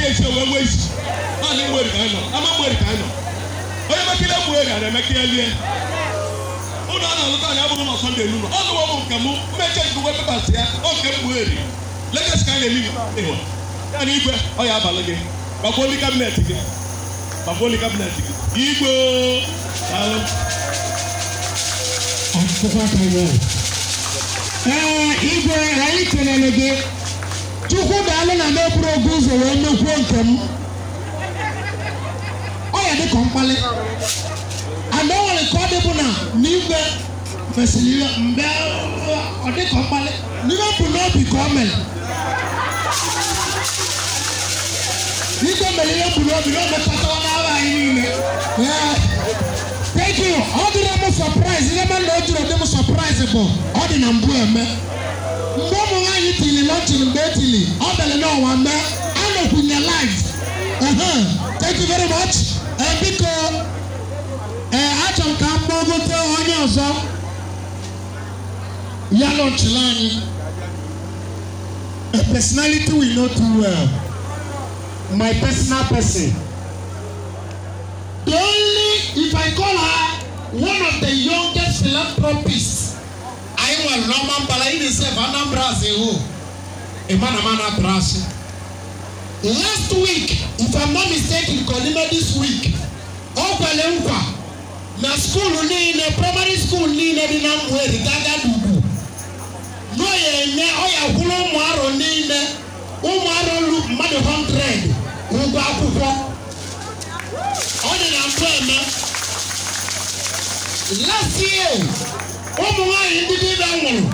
ehyia wɔn wɔ ekyi maa ne mu eri kan ama mu eri kan nɔ onye mekele mu eri ara mekele liɛ ụlọ a na-alụta anyị abụghị na sọnde elu ọnụ ọmụ nke mụ mmeche nke ụgwọ pepas ya ọ nke mgbu eri legesi ka anyị na-eli ịhụ ya na igwe ọ ya abalị gị gbakwa oli kabinet gị gbakwa oli kabinet gị igbo daalụ ọtụtụ aka ya ee igwe anyị kelele gị alụ na n'eburu oge ụzọ wee mekwuo nke m ọ ya dị ka mkpali ana o nwere ka ọ dịbụ na n'igwe fesiri ihe mgbe ọ dị ka mkpali n'ihe bụ n'obi ka o mere n'igwe mere ihe bụ n'obi na omekọtawa n'aba anyị niile thank you ọ dịrị m sọpraịz ihe mere na o jiri dị m sọpraịz bụ ọ dị na mbụ eme launching Bethany. All the Lord one there. All of in your Thank you very much. Uh, Biko, uh, Acham Kambogo te onye ọzọ. Ya launchila anyị. A personality we know too well. My personal person. The only, if I call her one of the youngest philanthropists, I will Norman Balayi dey serve Anambra as a eh, whole. Oh emanamana atra ase last week if i'm not mistaken kọlima this week ọgbẹlẹ nkwa na school niile primary school niile dị na mwere gaga dudu n'oye nye ọya kwuru ụmụ arọ niile ụmụ arọ lu mmadụ 100 ụgwọ akwụkwọ ọ dị na mfe eme last year ụmụ nwaanyị ndị dibịa nwụrụ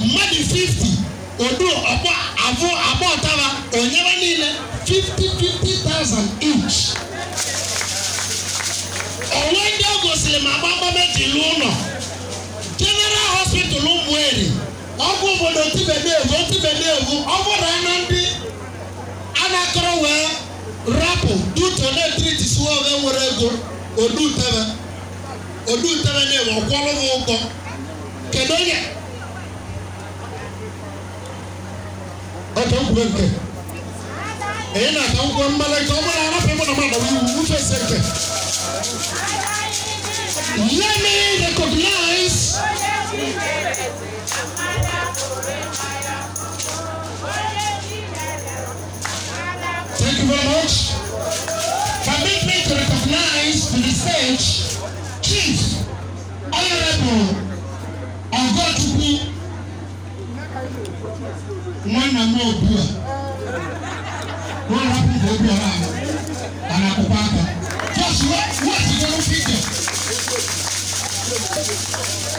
mmadụ 50 odu ọgba avụ abụọ taba onyebe niile 50 50,000 inch onwe ndị o gosiri ma gbakpọmeji lu ụlọ general hospital ụmụeri ọgwụ obodo tibedevu otibedevu ọ bụrụ na ndị anakọrọ wee rapụ duto na-etriti suwa oge nwere ego odutebe odutebe na-ewe ọkwọrọ m ụgwọ kedu onye ọtọ nkuru nke èyí na-ata nkwụ mmalị nke ọ bụla arapụ ịmụ na mmadụ iwu ufe se nke let me recognize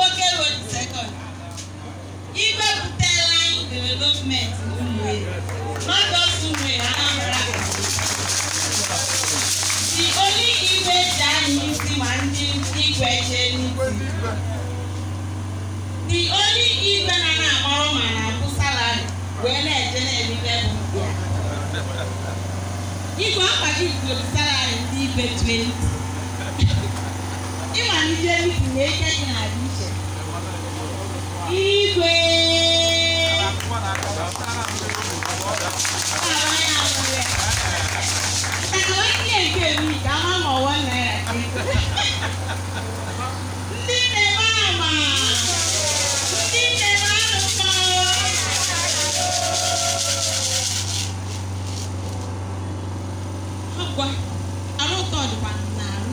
Nwoke Road second. Igbebute Line Development Umuwe, not just Umuwe, Anambra. The only Igwe Jani si ma ndị Igwe The only Igwe na na-akpọrọ ma na-abụ salari wee na-eje na-ebibe bụ ya. Igwe akpagị bụ salari ndị Igwe 20 bido isi na-eche gị n'ala iche igwe Agwa, arụ ụtọ dịkwa n'arụ.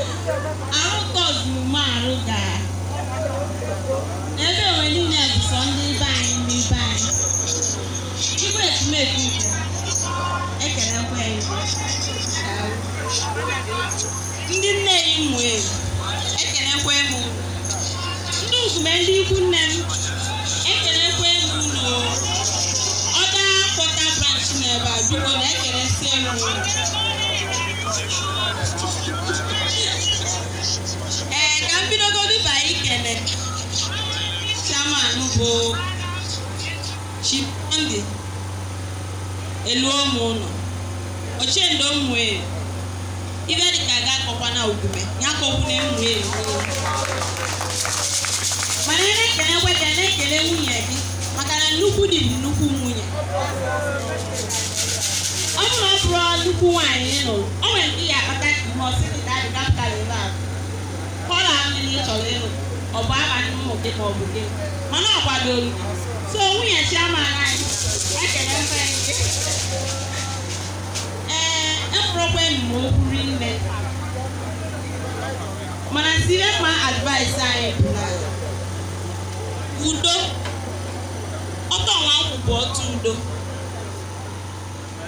arụ tọzuru gaa ebe onwe ndị ndị anyị igwe e ndị nne ya ụmụ ekelekwa e m ndị nkume ndị ikwu nne m ekelekwa m ụlọ ọda kpọta branch na ebe a biko na ekeresị anụ bụ elu ụmụ ụlọ ochendo mmụọ ibe dịka ga akọkwa na ogume ya kọkwuna mmụọ e elu mana ị na-ekelekwe ka na-ekele nwunye gị maka na nnukwu dị nnukwu nwunye ọ bụrụ bụrụ nnukwu nwaanyị ịlụ, nụrụ o nwere ndị ya akpata ka ihe ọsị dị dadị kapịtalị ka ọ na-ahụ ndị ị chọrọ ịlụ ọ bụ abalị mmụta ka ọ bụ gị mana ọ kwadoro so nwunye chiaman anyị ekele mfe ee ekwurokwa enyi o kwuru nne. mana sire mma advice anyị bụ na udo ọtọ nwa nkwụ bụ otu udo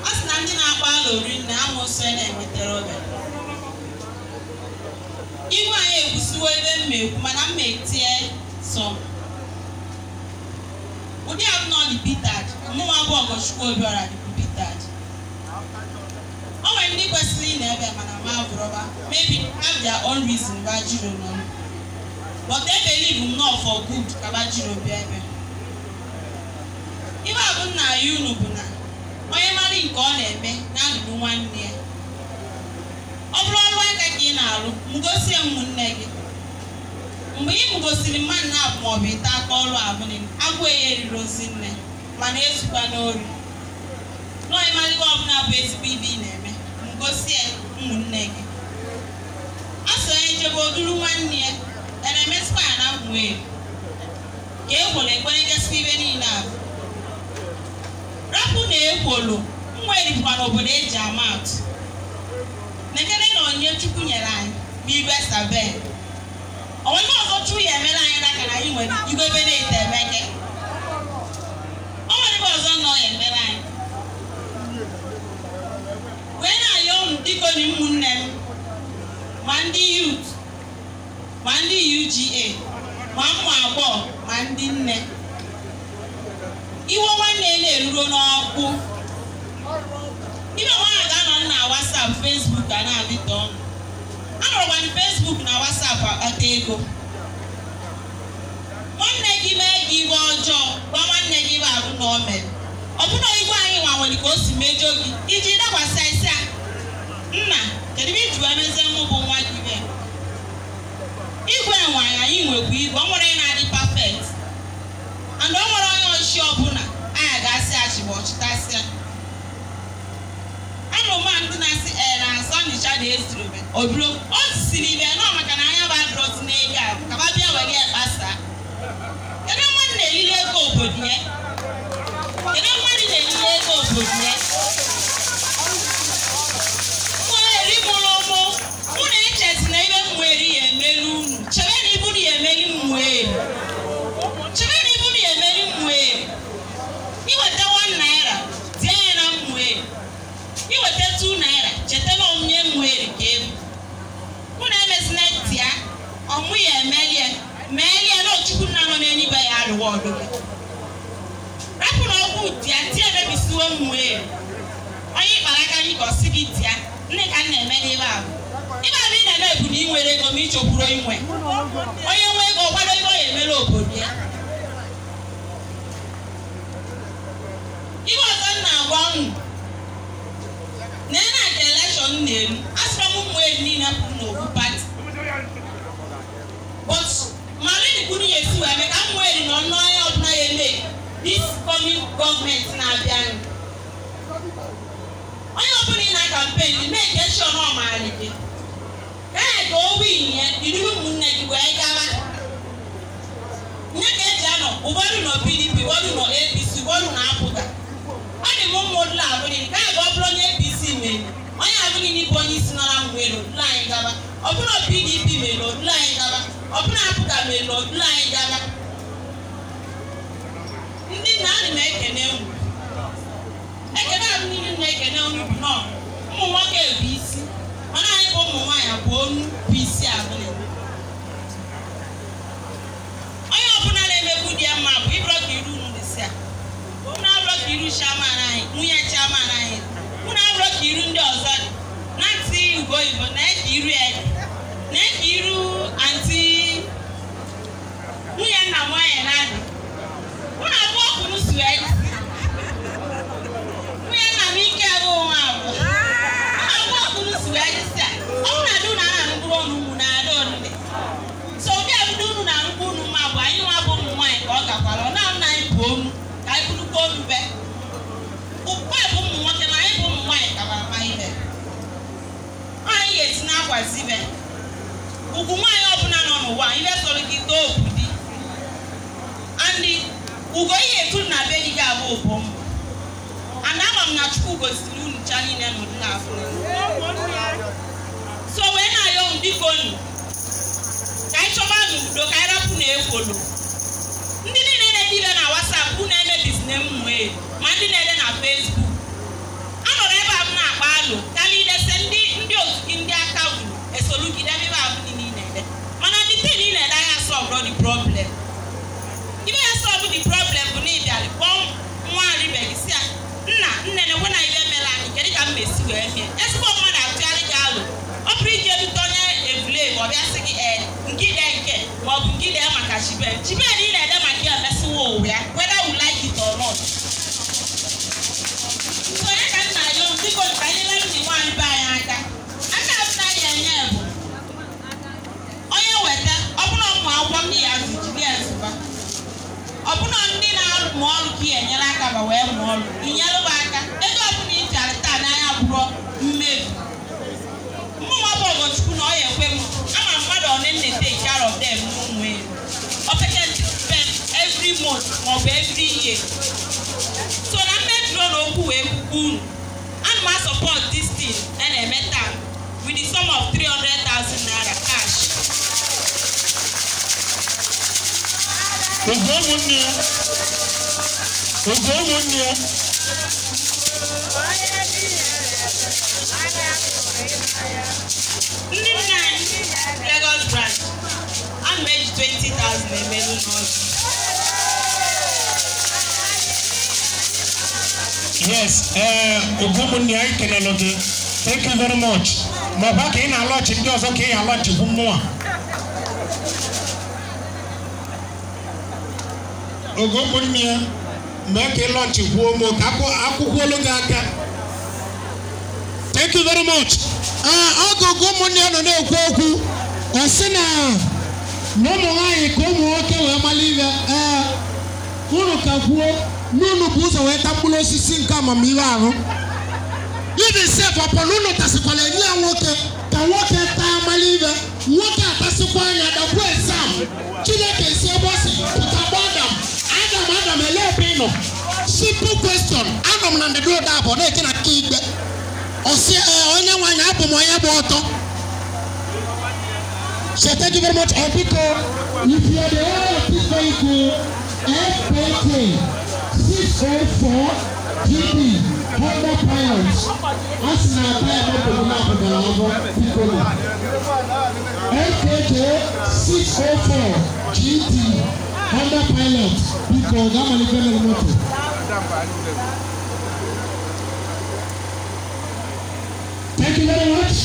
a sị na ndị na-akpa alụ rinne amụsọ e na-enwetara ọbịa ihu anyị ekwusiwo ebe m ekwu mana mma etie sọ ụdị abụọ dị Peter mụnwa bụ Ọgọchukwu obiọra dịbụ Peter o nwere ndị kwesịrị ị na-ebe mana ma agwụrọba maybe have their own reason bajiro nọ but e believe m not for good ka bajiro bịa ebe ibe abụ nna ya unu bụ na onye mmadụ nke ọ na-eme na-adụrụ nwanne ya ọ bụrụ aka ka ị na-alụ mgosie m gị mgbe ị mgosiri mmadụ na-abụ maọbụ ite aka ọrụ abụghị agwọ ya eriri ozi nne mana ezukwa n'ori n'ọịmalịgo ọbụla bụ ezigbo ibe ị na-eme mgosi ụmụnne gị a sị onye nchebe oduru nwanne ya eremesikwa ya na mmụọ elu ka ekworo ekwere gasịa ibe niile abụ rapụ na ekworo nwa erikwa n'obodo eji ama atụ onyinye Chukwu nyere anyị bụ igwe sabe onye ọzọ Chukwu ya emere anyị n'aka na anyị nwere igwe obere ite emeke o nwere ebe ọzọ nọ ya emere anyị wee na-ayọ ụmụ dịka onye ụmụnne m ma ndị yut ma ndị UGA ma ụmụ agbọghọ ma ndị nne iwe nwanne na-eruro n'ọkụ. akwa ọta ego nwanne gị mee gị iwe ọjọọ gwa nwanne gị iwe arụ na o mere ọ bụna igwe anyị nwanwere ka o si mejọ gị iji dakwasị isi a nna kedu ebe iji wee mezie mụ bụ nwa gị ibe igwe nwanyị anyị nwekwa igwe ọ nwere na-adị pafekt and ọ nwere onye ọchị ọbụla anyị ga-asị achịgba ọchịtasịa anụmanụ ndị na-asị ee na asọ nịcha na ezuru obido o siri ibe na ọgụgụ rapụ na ọgwụ dia tie emebisiwo m onye ịkpara aka anyị ka ọ sị gị dia ndị ka na-eme n'ebe ahụ ibe abụ ị na-eme bụ na ị nwere ego ma ichekwuro inwe onye nwe ego kwado ego ya ga-emere obodo ya ihe ọzọ m na-agwa unu dis coming government na abịa nụ onye ọbụla ị na kampen mee ka esi ọnụ ọmarị gị ee ka o win ya jiri ụmụnne gị wee gawa nye ka eji anọ ụfọdụ nọ pdp ụfọdụ nọ apc ụfọdụ na apụta ọ dị m ụmụ ụlọ abụghị ka ebe ọ bụrụ onye apc mere onye abụghị n'ịbụ onye isi nọ na mgbe n'obodo anyị gaba ọ bụrụ pdp mere n'obodo anyị gaba ọ bụrụ apụta mere n'obodo anyị gaba ndị nna na ekene unu ekene abụ niile na ekene unu bụ nọ ụmụ nwoke bụ isi mana anyị ka ụmụ nwaanyị abụọ onu bụ isi onye ọbụla na-emegbu di ya mma bụ ịbụrụ ka iru ụmụ si a abụrụ ka iru ka iru ndị ọzọ dị na ntị ugo oyibo na-eji iru ya dị so wee na-ayọ unu biko nu ka anyị chọba nu udo ka anyị rapụ na ekwolu ndị niile na-edibe na wasapụ unu emebizi na emume ma ndị na-ede ma ọ bụ gị dee maka chibel chibel ị na-ede maka ya emesiwo ụwa ya whether you like it or not onye ka nna ya dịko nka nyere ndị nwanyị be anyị aka aka azụta ya enye bụ onye weta ọbụna ụmụ akwụkwọ ndị ya zụjiri ezụba ọbụna ndị na-amụ ọrụ ka enyere aka ma wee mụọ ọrụ inyere m aka ego ọbụla ị jara taa n'anya bụrụ mmebi mmụnwa bụ ọgọchukwu na ọ ya ekwe m ama mmadụ ọ na eneta care arọ them month maọbụ every year so na mmebi na okwu wee kwukwu unu ana m asọpọt dis tin a e na-eme taa with the sum of 300,000 naira cash oge ụmụnne ya oge ụmụnne ya ndị nna anyị Lagos branch ana m eji 20,000 emelu n'ọzọ yes ee anyị kelele gị thank you very much ma ọkwa ka ị na-alọchi ndị ọzọ ka ị alọchigbu mmụọ ogomunne ya mee ka ị lọchikwuo m ka akwụkwọ olu gị thank you very much ah, ọgụgụ ụmụnne ya nọ na-ekwu okwu ọ sị na na ụmụ nwaanyị ka ụmụ nwoke wee mara ee ah, unu nunu bụ ụzọ wee tagburu osisi nke amamihe ahụ ibi sef ọpọ na unu tasịkwala enye ya nwoke ka nwoke taa amala ibe nwoke atasịkwa anya dakwa esam chineke si ebe ọ si pụta gba adam adam adam ele ebe ị nọ simple question anọ m na ndịda ụda abụọ na-eji na aka ikpe ọsị ee onye nwaanyị abụ m onye bụ ọtọ so thank you very much ọbiko if you are the one of this vehicle fk six oh four gb hundred pounds asi na ata ẹgbẹ gbogbo náà kò dára ọgbọ kíkọlù nkk six oh four gb hundred pounds bíkọ gámàlì fẹlẹ mọtò. Thank you very much.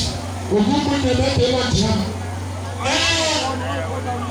Ogun Monday lọ́tẹ̀ẹ́ wà jìnnà.